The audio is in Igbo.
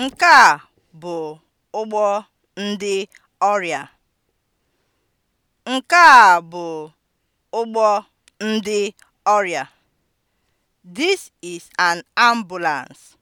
Nke a bụ ụgbọ ndị ọrịa. Nke This is an ambulance.